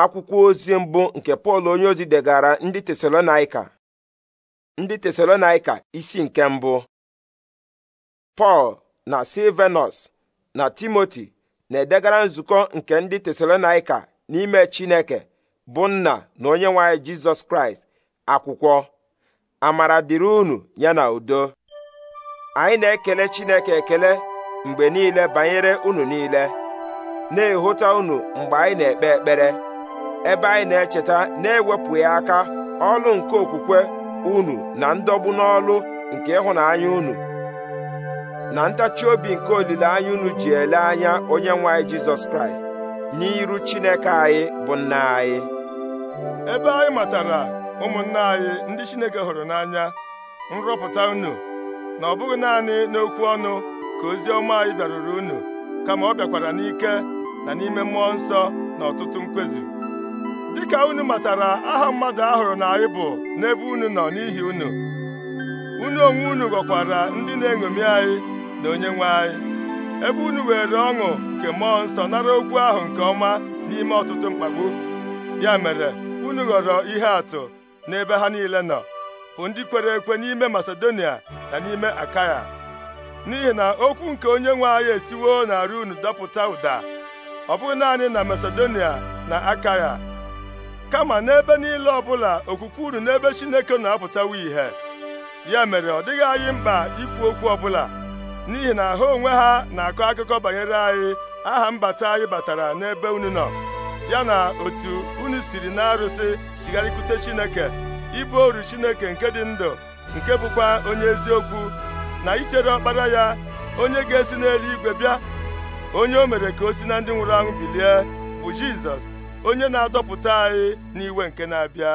akwụkwọ ozi mbụ nke pọl onye ozi degara ndị tesalonaika ndị tesalonaika isi nke mbụ pọl na silvenus na timoti na-edegara nzukọ nke ndị tesalonaika n'ime chineke bụ nna na onye nwanyị jizọs kraịst akwụkwọ amara dịrị unu ya na udo anyị na-ekele chineke ekele mgbe niile banyere unu niile na-ehụta unu mgbe anyị na-ekpe ekpere ebe anyị na-echeta na-ewepụghị aka ọlụ nke okwukwe unu na ndọgbu n'ọlụ nke ịhụnanya unu na ntachi obi nke olileanya unu ji ele anya onye nwe anyị jizọs kraịst n'iru chineke anyị bụ nna anyị ebe anyị matara ụmụnna anyị ndị chineke hụrụ n'anya nrọpụta unu na ọ bụghị naanị n'okwu ọnụ ka ozi ọma anyị bịaruru unu kama ọ bịakwara n'ike na n'ime mmụọ nsọ na ọtụtụ mkpezi dịka unu matara aha mmadụ ahụrụ na anyị bụ n'ebe unu nọ n'ihi unu unu onwe unu ghọkwara ndị na-eṅomi anyị na onyenwe anyị ebe unu were ọṅụ nke mmụọ nsọ nara okwu ahụ nke ọma n'ime ọtụtụ mkpagbu ya mere unu ghọrọ ihe atụ n'ebe ha niile nọ bụ ndị kwere ekwe n'ime Masedonia na n'ime Akaya n'ihi na okwu nke onye nwe anyị esiwo na unu dọpụta ụda ọ bụghị naanị na Masedonia na Akaya kama n'ebe niile ọbụla okwukwe unu n'ebe Chineke na-apụtawa ìhè ya mere ọ dịghị anyị mkpa ikwu okwu ọbụla n'ihi na ha onwe ha na-akọ akụkọ banyere anyị aha mbata anyị batara n'ebe unu nọ ya na otu unu siri na-arụsị chigharịkwute Chineke ibu oru Chineke nke dị ndụ nke bụkwa onye eziokwu na ichere ọkpara ya onye ga-esi n'eluigwe bịa onye o mere ka o si na ndị nwụrụ anwụ bilie bụ Jizọs onye na-adọpụta anyị n'iwe nke na-abịa